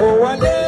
Owale.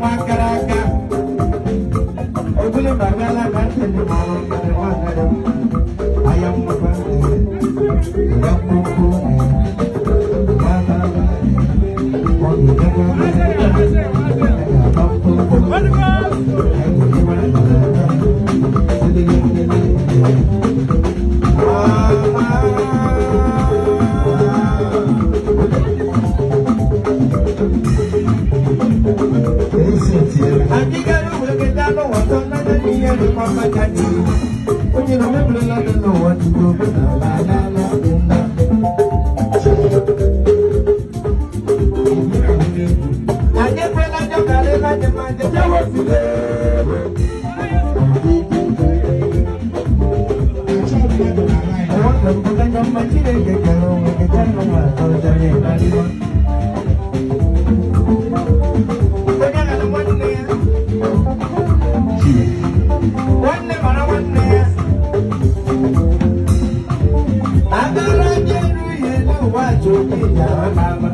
nwa gara aga obere ma agala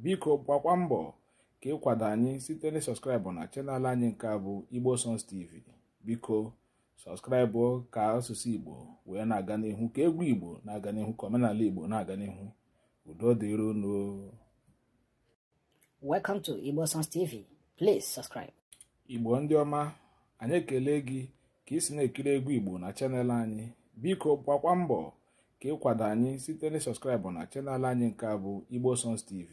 biko gbakwa mbọ ka ịkwado anyị site na sọskraịbụ na chanel anyị nke a bụ igbo Sons tv biko sọskraịbụ ka asụsụ igbo wee na-aga n'ihu ka egwu igbo na-aga n'ihu ka omenala igbo na-aga n'ihu udo dịru unu welcome to igbo songs please subscribe igbo ndị ọma anyị ekele gị ka ị si na-ekiri egwu igbo na chanel anyị biko gbakwa mbọ ka ịkwado anyị site na sọskraịbụ na chanel anyị nke a bụ igbo Sons tv